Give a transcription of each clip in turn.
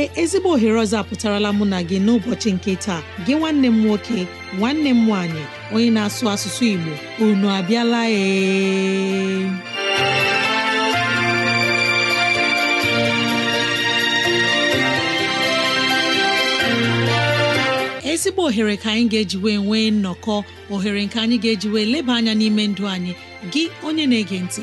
ee ezigbo ohere ọzọ apụtarala mụ na gị n'ụbọchị nke taa gị nwanne m nwoke nwanne m nwaanyị onye na-asụ asụsụ Igbo unu abịala ee ezigbo ohere ka anyị ga-ejiwe nwee nnọkọ ohere nke anyị ga-ejiwe leba anya n'ime ndụ anyị gị onye na-ege ntị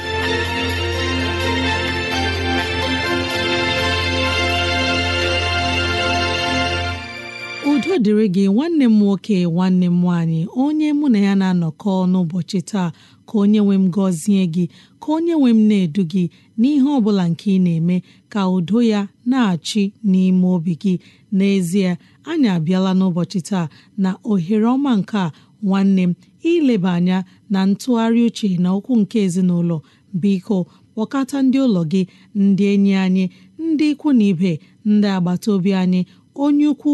dịrị gị nwanne m nwoke nwanne m nwaanyị onye mụ na ya na-anọkọ n'ụbọchị taa ka onye nwe m gọzie gị ka onye nwe m na-edu gị n'ihe ọ bụla nke ị na-eme ka udo ya na-achị n'ime obi gị n'ezie anyị abịala n'ụbọchị taa na ohere ọma nke nwanne m ileba anya na ntụgharị uche na okwu nke ezinụlọ biko kpọkọta ndị ụlọ gị ndị enyi anyị ndị ikwu na ibe ndị agbata obi anyị onye ukwu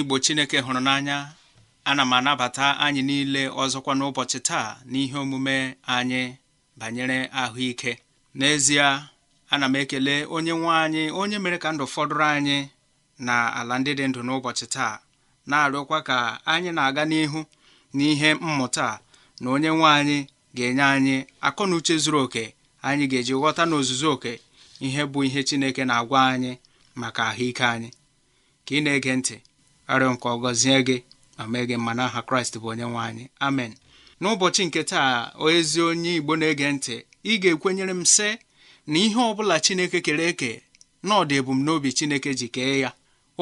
Igbo Chineke hụrụ n'anya ana m anabata anyị niile ọzọkwa n'ụbọchị taa n'ihe omume anyị banyere ahụike n'ezie ana m ekele onye nwe anyị onye mere ka ndụ fọdụrụ anyị na ala ndị dị ndụ n'ụbọchị taa na-arịọkwa ka anyị na-aga n'ihu n'ihe mmụta na onye nwe anyị ga-enye anyị akọ na uche zuru oke anyị ga-eji ghọta n'ozuzu oke ihe bụ ihe Chineke na-agwa anyị maka ahụike anyị ka ị na-ege ntị arịọ nke ọgọzie gị ma gị kraịst bụ onye nwe anyị amen n'ụbọchị nke taa ezi onye igbo na-ege ntị ị ga-ekwenyere m sị na ihe ọ bụla chineke kere eke na ọdị ebumnobi chineke ji kee ya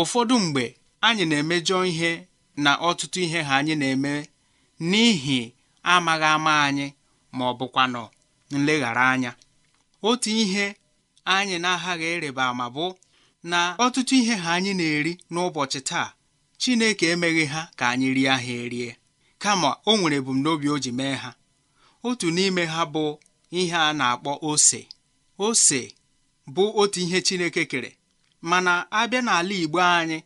ụfọdụ mgbe anyị na-emejọ ihe na ọtụtụ ihe ha anyị na-eme n'ihi amaghị ama anyị ma ọ bụkwanụ nleghara anya otu ihe anyị na-aghaghị ịrịba ma bụ na ọtụtụ ihe ha anyị na-eri n'ụbọchị taa Chineke emeghị ha ka anyị rie ha erie kama o nwere ebumnobi o ji mee ha otu n'ime ha bụ ihe a na-akpọ ose ose bụ otu ihe Chineke kere mana abịa n'ala Igbo anyị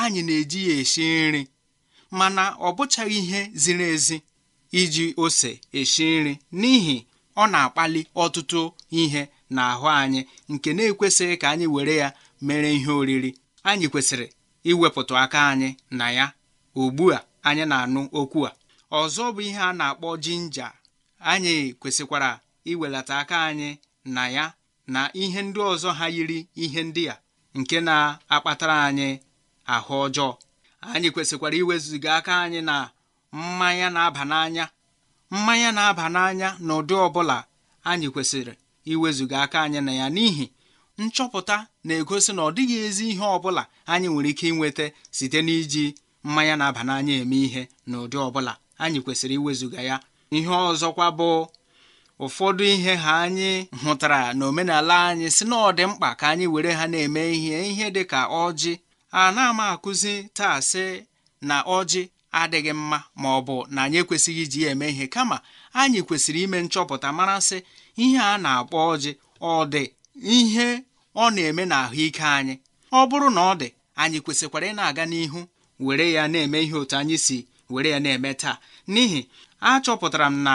anyị na-eji ya esi nri mana ọ bụchaghị ihe ziri ezi iji ose esi nri n'ihi ọ na-akpali ọtụtụ ihe n'ahụ anyị nke na-ekwesịghị ka anyị were ya mere ihe oriri anyị kwesịrị iwepụta aka anyị na ya ugbu a anyị na-anụ okwu a ọzọ bụ ihe a na-akpọ jinja anyị kwesịkwara iwelata aka anyị na ya na ihe ndị ọzọ ha yiri ihe ndị a nke na-akpatara anyị ahụ ọjọọ anyị kwesịkwara iwezuga aka anyị na mmanya na-aba n'anya mmanya na-aba n'anya n'ụdị ọbụla anyị kwesịrị iwezuga aka anyị na ya n'ihi nchọpụta na-egosi na ọ dịghị ezi ihe ọ bụla anyị nwere ike inweta site n'iji mmanya na-aba n'anya eme ihe na ụdị ọbụla anyị kwesịrị iwezuga ya ihe ọzọkwa bụ ụfọdụ ihe ha anyị hụtara na omenala anyị si na ọ dị mkpa ka anyị were ha na-eme ihe ihe dị ka ọjị a na-ama akụzi taa sị na ọjị adịghị mma ma ọ bụ na anyị ekwesịghị iji ya eme ihe kama anyị kwesịrị ime nchọpụta mara sị ihe a na-akpọ ọjị ọ dị ihe ọ na-eme ahụike anyị ọ bụrụ na ọ dị anyị kwesịkwara ị na-aga n'ihu were ya na-eme ihe otu anyị si were ya na-eme taa n'ihi achọpụtara m na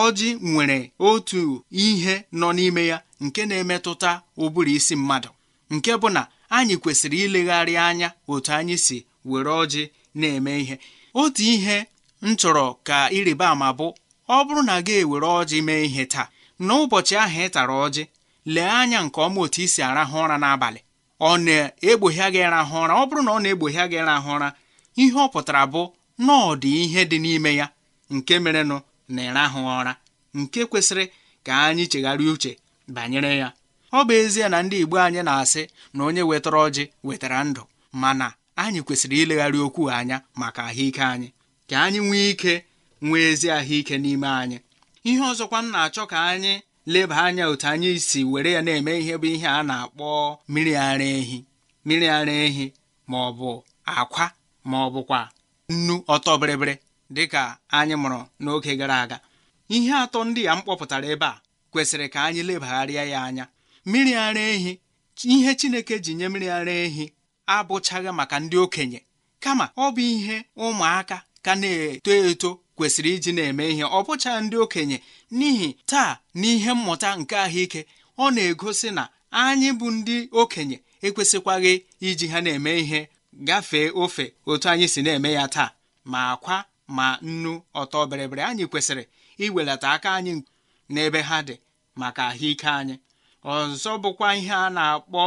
ọjị nwere otu ihe nọ n'ime ya nke na-emetụta ụbụrụ isi mmadụ nke bụ na anyị kwesịrị ilegharị anya otu anyị si were ọjị na-eme ihe otu ihe m chọrọ ka ịrịba ama bụ ọ bụrụ na gị ewere ọjị mee ihe taa n'ụbọchị ahụ ị tara ọjị lee anya nke ọma otu i si arahụ ụra n'abalị ọ na egbohie gị ụra ọ bụrụ na ọ na-egbogha gị rahụ ụra ihe ọ pụtara bụ na ọ dị ihe dị n'ime ya nke merenụ na ịrahụ ụra nke kwesịrị ka anyị chegharịa uche banyere ya ọ bụ ezie na ndị Igbo anyị na-asị na onye wetara ọjị wetara ndụ mana anyị kwesịrị ilegharị okwu anya maka ahụike anyị ka anyị nwee ike nwee ezi ahụike n'ime anyị ihe ọzọkwa m na-achọ ka anyị leba anya otu anyị si were ya na-eme ihe bụ ihe a na-akpọ mmiri ara ehi mmiri ara ehi ma ọ bụ akwa ma ọ bụkwa nnu ọtọ bịrịbịrị dịka anyị mụrụ n'oge gara aga ihe atọ ndị a m kpọpụtara ebe a kwesịrị ka anyị lebagharịa ya anya mmiri ara ehi ihe Chineke ji nye mmiri ara ehi abụchaghị maka ndị okenye kama ọ bụ ihe ụmụaka ka na-eto eto kwesịrị iji na-eme ihe ọ bụcha ndị okenye n'ihi taa n'ihe mmụta nke ahụike ọ na-egosi na anyị bụ ndị okenye ekwesịkwaghị iji ha na-eme ihe gafee ofe otu anyị si na-eme ya taa ma akwa ma nnu ọtọ bịrịbịrị anyị kwesịrị iwelata aka anyị n'ebe ha dị maka ahụike anyị ọzọ bụkwa ihe a na-akpọ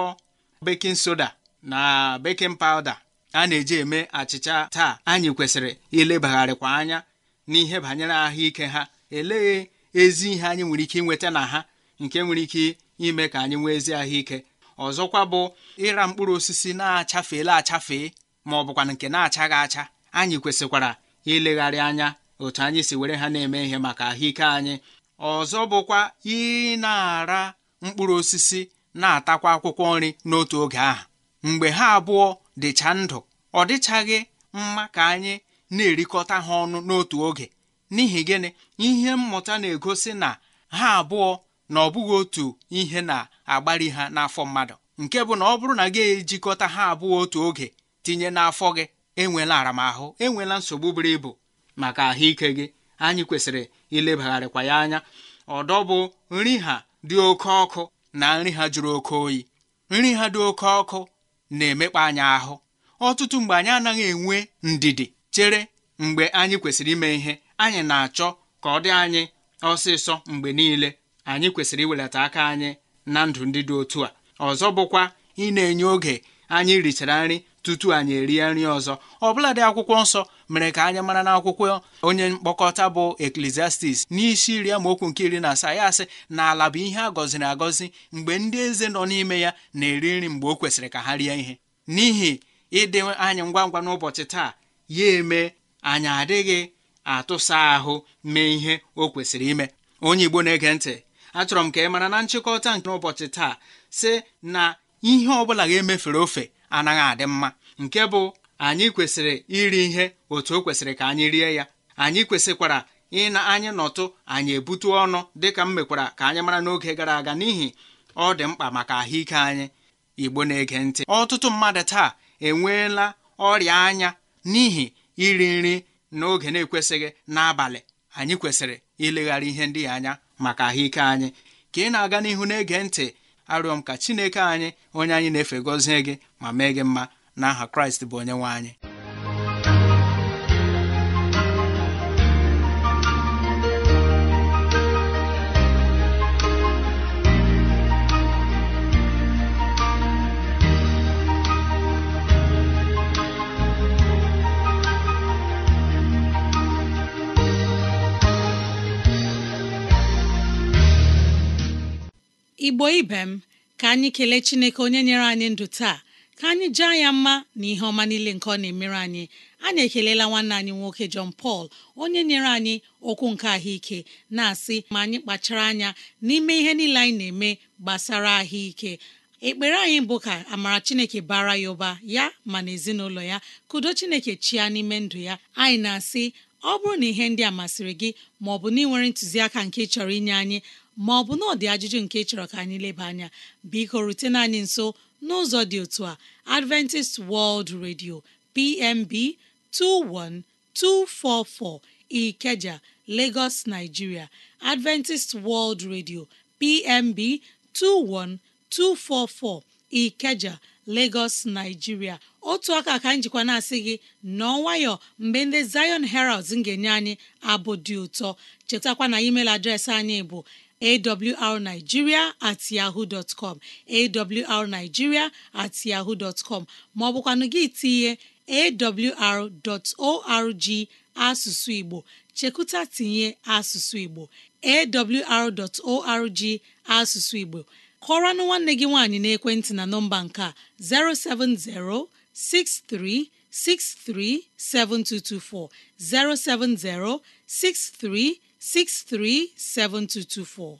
bekin soda na bekin pawda a na-eji eme achịcha taa anyị kwesịrị ilebagharịkwa anya n'ihe banyere ahụike ha elee ezi ihe anyị nwere ike inweta na ha nke nwere ike ime ka anyị nwee ezi ahụike ọzọkwa bụ ịra mkpụrụ osisi na-achafeela achafee ma ọ bụkwa nke na-achaghị acha anyị kwesịkwara ilegharị anya otu anyị si were ha na-eme ihe maka ahụike anyị ọzọ bụkwa ị na-ara mkpụrụ osisi na-atakwa akwụkwọ nri n'otu oge ahụ mgbe ha abụọ dịcha ndụ ọ dịchaghị mma ka anyị na-erikọta ha ọnụ n'otu oge n'ihi gịnị ihe mmụta na-egosi na ha abụọ na ọ bụghị otu ihe na-agbari ha n'afọ mmadụ nke bụ na ọ bụrụ na gị ejikọta ha abụọ otu oge tinye n'afọ gị enwela aramahụ enwela nsogbu buru ibu maka ahụike gị anyị kwesịrị ilebagharịkwa ya anya ọdọ bụ nri ha dị oke ọkụ na nri ha jụrụ oke oyi nri ha dị oke ọkụ na-emekpa anyị ahụ ọtụtụ mgbe anyị anaghị enwe ndidi chere mgbe anyị kwesịrị ime ihe anyị na-achọ ka ọ dị anyị ọsịsọ mgbe niile anyị kwesịrị iwelata aka anyị na ndụ ndị dị otu a ọzọ bụkwa ị na-enye oge anyị richara nri tutu anyị erie nri ọzọ dị akwụkwọ nsọ mere ka anyị mara n'akwụkwọ onye mkpọkọta bụ eklesiastis n'isi iri amaokwu nke iri na asaa ya asị na ala bụ ihe a gọziri agọzi mgbe ndị eze nọ n'ime ya na-eri nri mgbe o kwesịrị ka ha rie ihe n'ihi ịdị anyị ngwa ngwa n'ụbọchị taa ya eme anyị adịghị atụsa ahụ mee ihe o kwesịrị ime onye Igbo na-ege ntị achọrọ m ka ị mara na nchịkọta nke ụbọchị taa sị na ihe ọ bụla ga-emefere ofe anaghị adị mma nke bụ anyị kwesịrị iri ihe otu o kwesịrị ka anyị rie ya anyị kwesịkwara ịna anyị nọtụ anyị ebute ọnụ dịka m mekwara ka anyị mara n'oge gara aga n'ihi ọ dị mkpa maka ahụike anyị Igbo na-ege ntị ọtụtụ mmadụ taa enweela ọrịa anya n'ihi iri nri n'oge na-ekwesịghị n'abalị anyị kwesịrị ileghara ihe ndị anya maka ahụike anyị ka ị na-aga n'ihu na-ege ntị arịọ m ka Chineke anyị onye anyị na-efe gọzie gị ma mee gị mma n'aha Kraịst bụ onye nwe anyị igbo ibe m ka anyị kelee chineke onye nyere anyị ndụ taa ka anyị jaa ya mma na ihe ọma niile nke ọ na-emere anyị anyị ekelela nwanne anyị nwoke John pal onye nyere anyị okwu nke ahụike na-asị ma anyị kpachara anya n'ime ihe niile anyị na-eme gbasara ahụike ekpere anyị bụ ka amara chineke bara ya ụba ya ma na ezinụlọ ya kudo chineke chia n'ime ndụ ya anyị na-asị ọ bụrụ na ihe ndị a masịrị gị ma ọ bụ na ị nwere ntụziaka nke ị chọrọ inye anyị ma ọ bụ na ọdị ajụjụ nke chọrọ ka anyị leba anya biko rutena anyị nso n'ụzọ dị otu a Adventist World Radio PMB 21244 Ikeja Lagos Nigeria Adventist World Radio PMB 21244 Ikeja Lagos Nigeria otu aka ka njikwa na-asị gị nọọ nwayọ mgbe ndị Zion Heralds ga-enye anyị abụ dị ụtọ chetakwa na email adreesị anyị bụ awrnigeria at yahoo com awrnigeria at yahoo com Ma ọ bụkwa n'oge itinye AWR asụsụ Igbo, Chikuta tinye asụsụ Igbo AWR asụsụ Igbo. Kọọranụ nwanne gị nwaanyị n'ekwentị na nọmba nke a. O70 6363 7224 O70 637224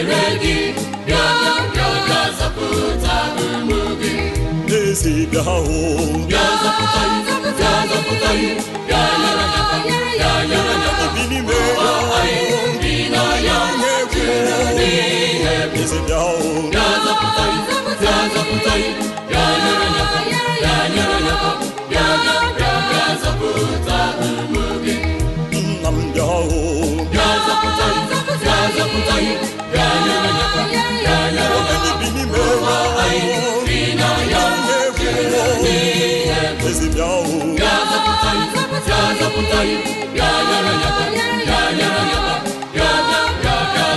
chere gị bịa bịa zọpụta ụmụ gị n'ezi bịa hụ bịa zọpụta bịa zọpụta bịa nyere aka bịa nyere aka bi n'ime anyị bi n'anya chere n'ihe ezi bịa hụ bịa zọpụta bịa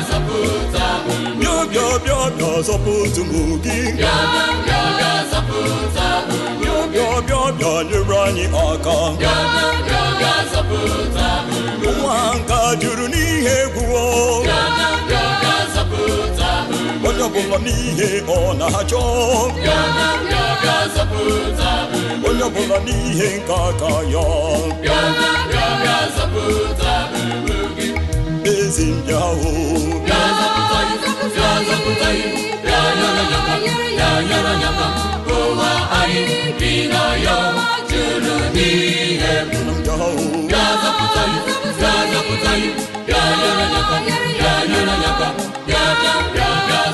zọpụta ụmụ gị bịa bịa nyere anyị aka ụwa nka juru n'ihe egwu ọ bụla n'ihe ọ na-achọ onye ọ bụla n'ihe nke aka ya ezi ndị ahụ ụwa anyị bi na ya juru n'ihe bịa zọpụta ya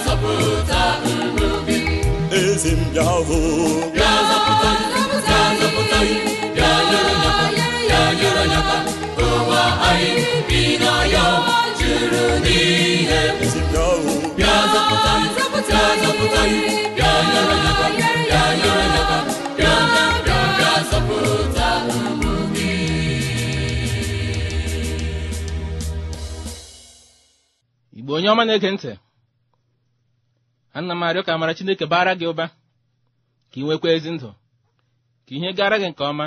zọpụta ndụ gị eze m bịa hụ onye ọma na-ege ntị ana m arịọ ka amara chineke bara gị ụba ka ị nwekwa ezi ndụ ka ihe gara gị nke ọma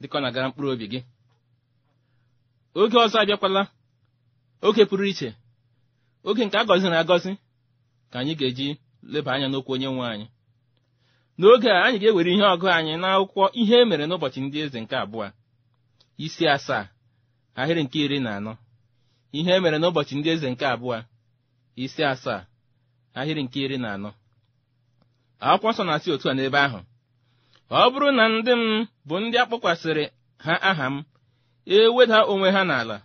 dịka ọ na-agara mkpụrụ obi gị oge ọzọ abịakwala oge pụrụ iche oge nke a gọziri agọzi ka anyị ga-eji leba anya n'okwu onye nwe anyị n'oge a anyị ga-ewere ihe ọgụ anyị n'akwụkwọ ihe e mere n'ụbọchị ndị eze nke abụọ isi asaa ahịrị nke iri na anọ ihe e mere n'ụbọchị ndị eze nke abụọ isi asaa ahịrị nke iri na anọ akwụkwọ nsọ na-asị otu a n'ebe ahụ ọ bụrụ na ndị m bụ ndị akpọkwasịrị ha aha m eweda onwe ha n'ala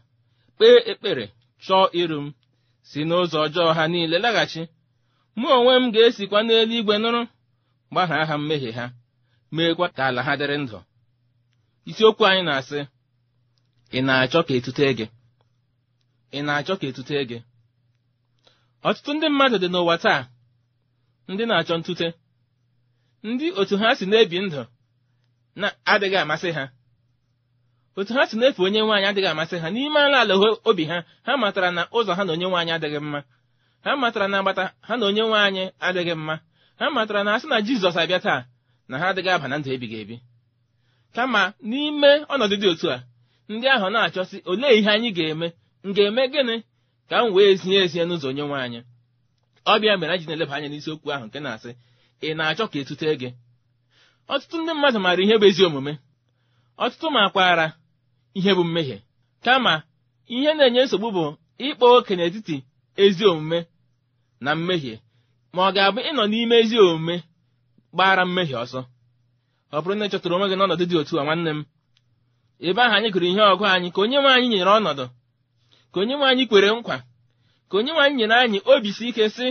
kpee ekpere chọọ iru m si n'ụzọ ọjọọ ha niile laghachi mụ onwe m ga-esikwa n'elu igwe nụrụ gbaha aha mmehie ha meekwa ka ala ha dịrị ndụ isiokwu anyị na-asị ị na-achọ ka etute gị ị na-achọ ka etute gị ọtụtụ ndị mmadụ dị n'ụwa taa ndị na-achọ ntute ndị otu ha si na-ebi ndụ na-adịghị amasị ha otu ha si na-efe onye nwaanyị adịghị amasị ha n'ime ala ala obi ha ha matara na ụzọ ha na onye nwaanyị adịghị mma ha matara na agbata ha na onye nwaanyị adịghị mma ha matara na asị na Jizọs abịa taa na ha adịghị aba na ndụ ebighị ebi kama n'ime ọnọdụ dị otu a ndị ahụ na-achọsi olee ihe anyị ga-eme m ga-eme gịnị ka m wee zinye ezie n'ụzọ onye nwe anyị ọbịa mere anyị na-eleba anya n'isiokwu ahụ nke na-asị ị na-achọ ka etute gị ọtụtụ ndị mmadụ maara ihe bụ ezi omume ọtụtụ makwaara ihe bụ mmehie kama ihe na-enye nsogbu bụ ịkpa oke n'etiti ezi omume na mmehie ma ọ ga-abụ ịnọ n'ime ezi omume gbara mmehie ọsọ ọ bụrụ na ị chọtara onwe gị n'ọnọdụ dị otu a nwanne m ebe ahụ anyị gụrụ ihe ọgụ anyị ka onye nwe anyị nyere ọnọdụ ka onye nwe anyị kwere nkwa ka onye nwe anyị nyere anyị obi si ike sị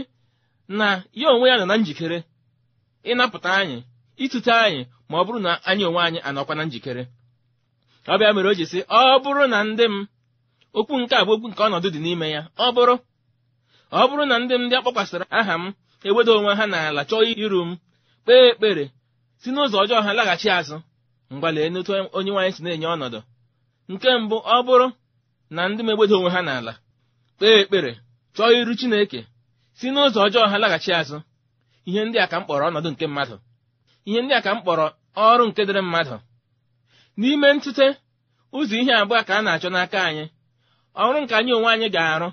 na ya onwe ya nọ na njikere ịnapụta anyị ịtụte anyị ma ọ bụrụ na anyị onwe anyị anọkwa na njikere ọ bịa mere o ji sị ọ bụrụ na ndị m okwu nke a bụ okwu nke ọnọdụ dị n'ime ya ọ bụrụ ọ bụrụ na ndị m ndị akpọkwasịra aha m eweda onwe ha n'ala chọọ iru m kpee ekpere si n'ụzọ ọjọọ ha laghachi azụ mgbalee n'otu onye nwaanyị si na-enye ọnọdụ nke mbụ ọ bụrụ na ndị megbedo onwe ha n'ala kpee ekpere chọọ iru Chineke si n'ụzọ ọjọọ ha laghachi azụ ihe ndị a ka m kpọrọ ọnọdụ nke mmadụ ihe ndị a ka m kpọrọ ọrụ nke dịrị mmadụ n'ime ntụte ụzọ ihe abụọ ka a na-achọ n'aka anyị ọrụ nke anyị onwe anyị ga-arụ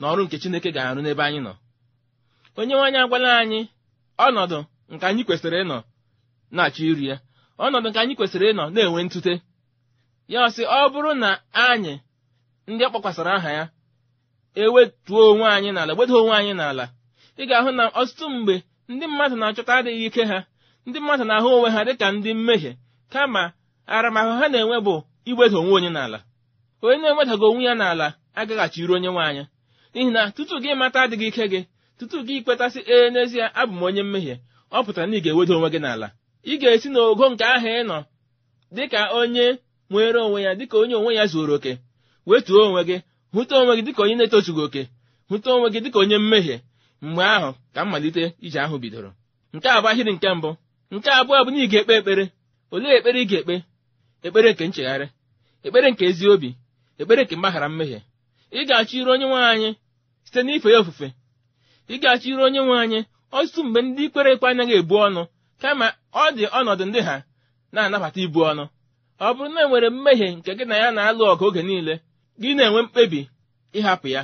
na ọrụ nke Chineke ga-arụ n'ebe anyị nọ onye nwaanyị agwala anyị ọnọdụ nke anyị kwesịrị ịnọ na-achọ iri ya ọnọdụ nke anyị kwesịrị ịnọ na-enwe ntụte ya ọsị ọ bụrụ na anyị ndị ọ aha ya ewetuo onwe anyị n'ala gbedo onwe anyị n'ala ị ga-ahụ na ọtụtụ mgbe ndị mmadụ na-achọta adịghị ike ha ndị mmadụ na-ahụ onwe ha dịka ndị mmehie kama aramahụ ha na-enwe bụ igbeda onwe onye n'ala onye na-enwedaghị onwe ya n'ala agaghachiri onye nwe n'ihi na tutu gị mata adịghị ike gị tutu gị kwetasị ee n'ezie abụ m onye mmehie ọ pụtara na ị ga-eweda onwe gị n'ala ị ga-esi n'ogo nke ahụ ịnọ dịka onye nwere onwe ya dịka onye onwe ya zuoro oke wetuo onwe gị hụta onwe gị dịka onye na-etozughị oke hụta onwe gị dịka onye mmehie mgbe ahụ ka mmalite ije ahụ bidoro nke a bụ ahịrị nke mbụ nke abụọ bụ na ị ga-ekpe ekpere olee ekpere ị ga-ekpe ekpere nke nchegharị ekpere nke ezi obi ekpere nke mgbaghara mmehie ị ga-achọ iru onye nwe anyị site n'ife ya ofufe ị ga-achọ iru onye nwe anyị ọtụtụ mgbe ndị ikpere ekwe anaghị ebu ọnụ kama ọ dị ọnọdụ ndị ha na-anabata ibu ọnụ ọ bụrụ na e nwere mmehie nke gị na ya na-alụ ọgụ oge niile gị na-enwe mkpebi ịhapụ ya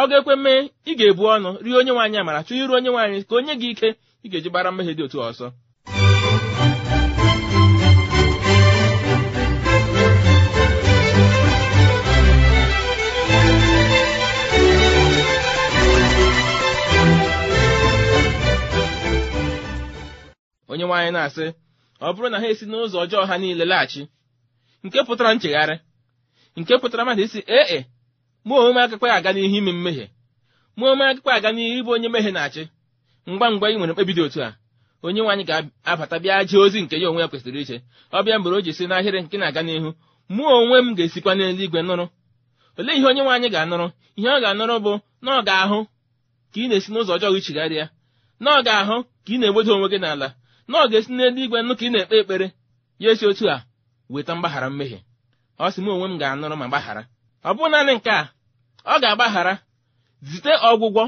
ọ ga-ekwe mee ị ga-ebu ọnụ rie onye nwaanyị amara chọọ iru onye nwaanyị ka onye gị ike ị ga-eji gbara mmehie dị otu ọzọ. onye nwaanyị na-asị ọ bụrụ na ha esi n'ụzọ ọjọọ ha niile laghachi nke pụtara nchegharị nke pụtara mmadụ isi ee e mụ onwe m aga n'ihu ime mmehie mụ onwe m aga n'ihu ịbụ onye mmehie na-achị ngwa ngwa ị nwere mkpebi dị otu a onye nwaanyị ga-abata bịa jee ozi nke ya onwe ya kwesịrị iche ọ bịa mgbe o ji si n'ahịrị nke na-aga n'ihu mụ onwe m ga-esikwa n'eluigwe nụrụ olee ihe onye nwaanyị ga-anụrụ ihe ọ ga-anụrụ bụ na ọ ga-ahụ ka ị na-esi n'ụzọ ọjọọ gị chigharịa na ọ ga-ahụ ka ị na-egbodo onwe gị n'ala na ọ ga-esi n'eluigwe nụ ka ị na-ekpe ekpere ya esi otu a weta mgbaghara mmehie ọ sị m onwe m ga-anụrụ ma gbaghara ọ bụ naanị nke a ọ ga-agbaghara zite ọgwụgwọ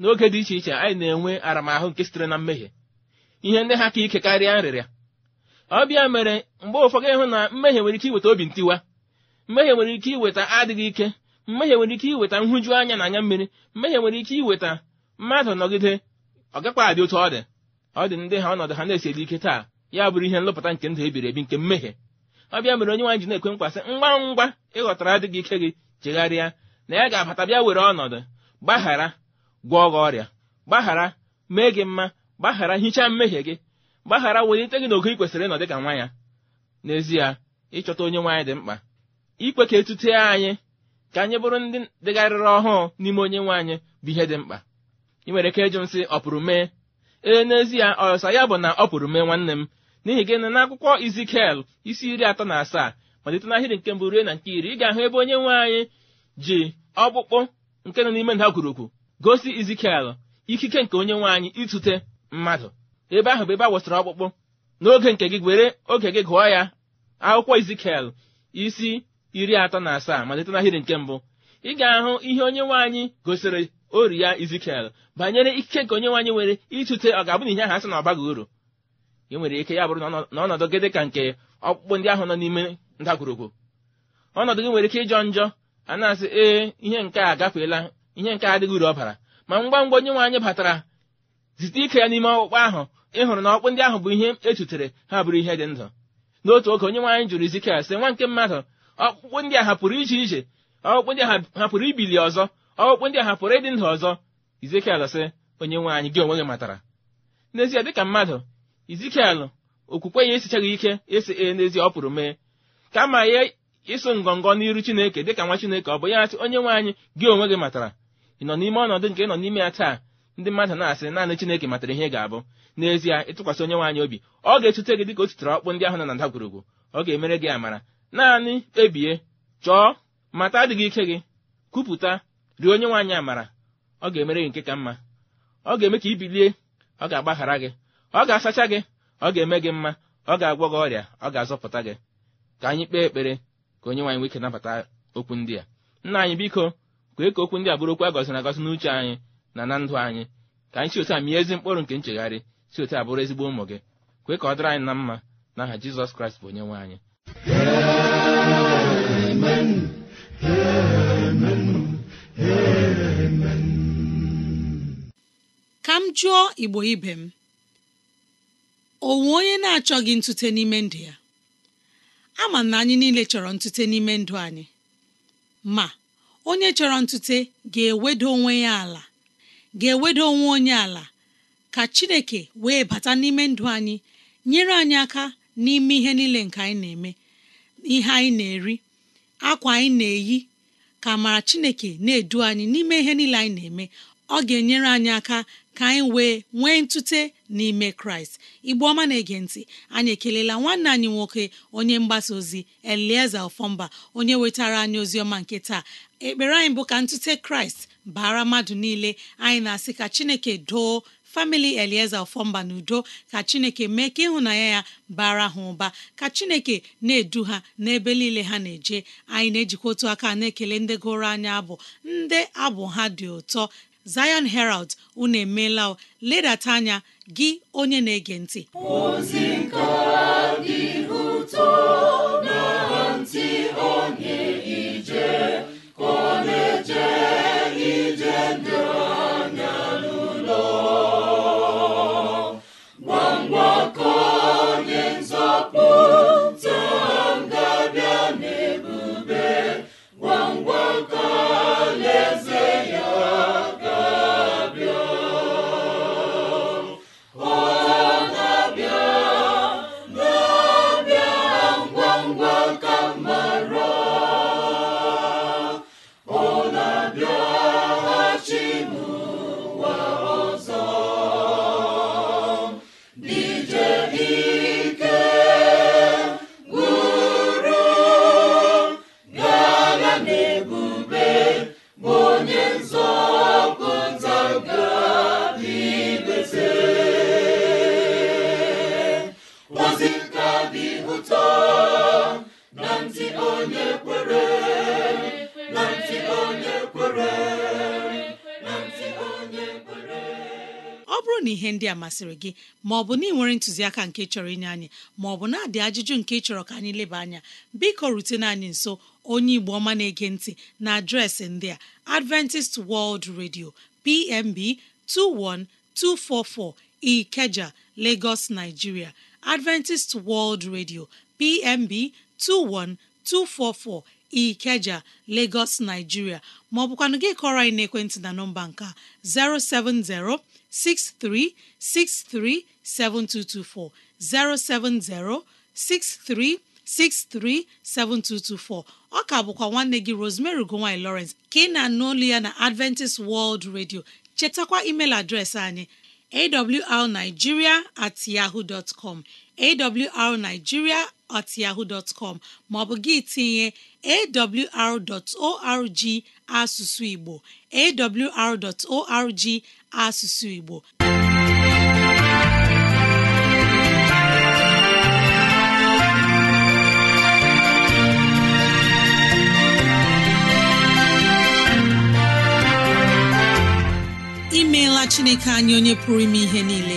n'oge dị iche iche anyị na-enwe aramahụ nke sitere na mmehie ihe ndị ha ka ike karịa nrịrịa ọbịa mere mgbe ụfọdụ ịhụ na mmehie nwere ike iweta obi ntiwa mmehie nwere ike iweta adịghị ike mmehie nwere ike iweta nhụju anya na anya mmiri mmehie nwere ike iweta mmadụ nọgide ọ adị otu ọ dị ọ dị ndị ha ọnọdụ ha na-esi edi ike taa ya bụrụ ihe nlụpụta nke ndụ ebiri ebi nke mmehie ọ bịa mere onye nwaanyị ji na-ekwe mkpa sị ngwa ngwa ịghọtara adịghị ike gị chegharịa na ya ga-abata bịa were ọnọdụ gbaghara gwọọ gị ọrịa gbaghara mee gị mma gbaghara hichaa mmehie gị gbaghara welite gị n'ogo ị kwesịrị ịnọ dị ka nwa ya n'ezie ịchọta onye nwaanyị dị mkpa ikwe ka etute anyị ka anyị bụrụ ndị dịgharịrị ọhụụ n'ime onye nwe anyị bụ ihe dị mkpa ị nwere ike ịjụ nsị ọ pụrụ mee ee n'ezie ọsa ya bụ na ọ pụrụ mee nwanne m n'ihi gịnị n'akwụkwọ izikiel isi iri atọ na asaa malite ahịrị nke mbụ rue na nke iri ị ga-ahụ ebe onye nwe anyị ji ọkpụkpụ nke nọ n'ime ndagwurugwu gosi izikiel ikike nke onye nwe anyị itute mmadụ ebe ahụ bụ ebe a wụsịrị ọkpụkpụ n'oge nke gị were oge gị gụọ ya akwụkwọ izikiel isi iri atọ na asaa malite ahịrị nke mbụ ị ga-ahụ ihe onye nwe anyị gosiri ori ya izikiel banyere ikike nke onye nwe anyị nwere itute ọ ga-abụ na ihe ahụ asị na ọ baghị uru enwere ike ya bụrụ na ọnọdụ gị dị ka nke ọkpụkpụ ndị ahụ nọ n'ime ndagwurugwu ọnọdụ gị nwere ike ịjọ njọ a na-asị ee ihe nke a agafeela ihe nke adịghị uru ọbara ma ngwa ngwa onye nwe anyị batara zite ike ya n'ime ọkpụkpụ ahụ ịhụrụ na ọkpụ ndị ahụ bụ ihe echutere ha bụrụ ihe dị ndụ n'otu oge onye nwe jụrụ Ezikiel sị nwa nke mmadụ ọkpụkpụ ndị a hapụrụ ije ije ọkpụkpụ ndị a hapụrụ ibili ọzọ ọkpụkpụ ndị a hapụrụ ịdị ndụ ọzọ Ezikiel sị onye nwe gị onwe gị matara n'ezie dịka mmadụ izikiel okwukwe ya esichaghị ike esi e n'ezie ọ pụrụ mee kama ya ịsụ ngọngọ n'iru chineke dịka nwa chineke ọ bụ ya asị onye nwe anyị gị onwe gị matara ị nọ n'ime ọnọdụ nke ị nọ n'ime ya taa ndị mmadụ na-asị naanị chineke matara ihe ga-abụ n'ezie ịtụkwasị onye nwaanyị obi ọ ga-etute gị dịka o ositere ọkpụ ndị ahụ na ndagwurugwu ọ ga-emere gị amara naanị ebie chọọ mata adịghị ike gị kwupụta rie onye nwaanyị amara ọ ga-emere gị nke ka mma ọ ga-eme ka i bilie ọ ga-agbaghara gị ọ ga-asacha gị ọ ga-eme gị mma ọ ga-agwọ gị ọrịa ọ ga-azọpụta gị ka anyị kpee ekpere ka onye nwaanyị nwike nabata okwu ndị a nna anyị biko kwee ka okwu ndị a bụrụ okwu a gọziri agọzi n'uche anyị na na ndụ anyị ka anyị si otu a mie ezi mkpụrụ nke nchegharị si otu a bụrụ ezigbo ụmụ gị kwee ka ọ dịrị anyị na mma n'aha jizọs kraịst bụ onye nwe anyị ka m jụọ igbo ibe m onwe onye na-achọghị ntute n'ime ndụ ya ama na anyị niile chọrọ ntute n'ime ndụ anyị ma onye chọrọ ntute ga-eweda onwe ya ala ga-eweda onwe onye ala ka Chineke wee bata n'ime ndụ anyị nyere anyị aka n'ime ihe niile nke anyị na-eme ihe anyị na-eri akwa anyị na-eyi ka amara Chineke na-edu anyị n'ime ihe niile anyị na-eme ọ ga-enyere anyị aka ka anyị wee nwee ntute n'ime kraịst igbe ọma na-ege ntị anyị ekelela nwanne anyị nwoke onye mgbasa ozi elieze ofọmba onye wetara anyị ozi ọma nke taa ekpere anyị bụ ka ntute kraịst bara mmadụ niile anyị na-asị ka chineke doo famili elieze ofọmba na udo ka chineke mee ka ịhụnanya ya bara ha ụba ka chineke na-edu ha n'ebe niile ha na-eje anyị na-ejikwa otu aka na-ekele ndị gụrụ anya abụ ndị abụ ha dị ụtọ Zion Herald unu emeela ledata anya gị onye na-ege ntị ozi nke dị ụtọ na ntị onye ije ka ọ ije ndụ na ntị onye kwere na ntị onye kwere na ntị onye kwere ọ bụrụ na ihe ndị a masịrị gị ma ọ bụ na ị nwere ntụziaka nke chọrọ inye anyị ma ọ bụ na-adị ajụjụ nke chọrọ ka anyị leba anya biko rutena anyị nso onye Igbo ọma na-ege ntị na adreesị ndị a Adventist World Radio PMB 21244 Ikeja, Lagos, Nigeria Adventist World Radio PMB 21244 Ikeja Lagos Nigeria maọbụkwanụ ọ gị kọrọ anyị n'ekwentị na nọmba nka 07063637224 07063637224 ọ ka bụkwa nwanne gị Rosemary ugowany Lawrence ka ị na-anụ ya na Adventist World Radio chetakwa email adreesị anyị awrnigeria at yahoo dot com at yahoo com maọbụ gị tinye awr.org asụsụ Igbo awr.org asụsụ Igbo imeela Chineke anyị onye pụrụ ime ihe niile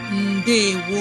ndewo